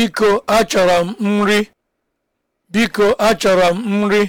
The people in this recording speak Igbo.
Biko achọrọ m nri. Biko achọrọ m nri.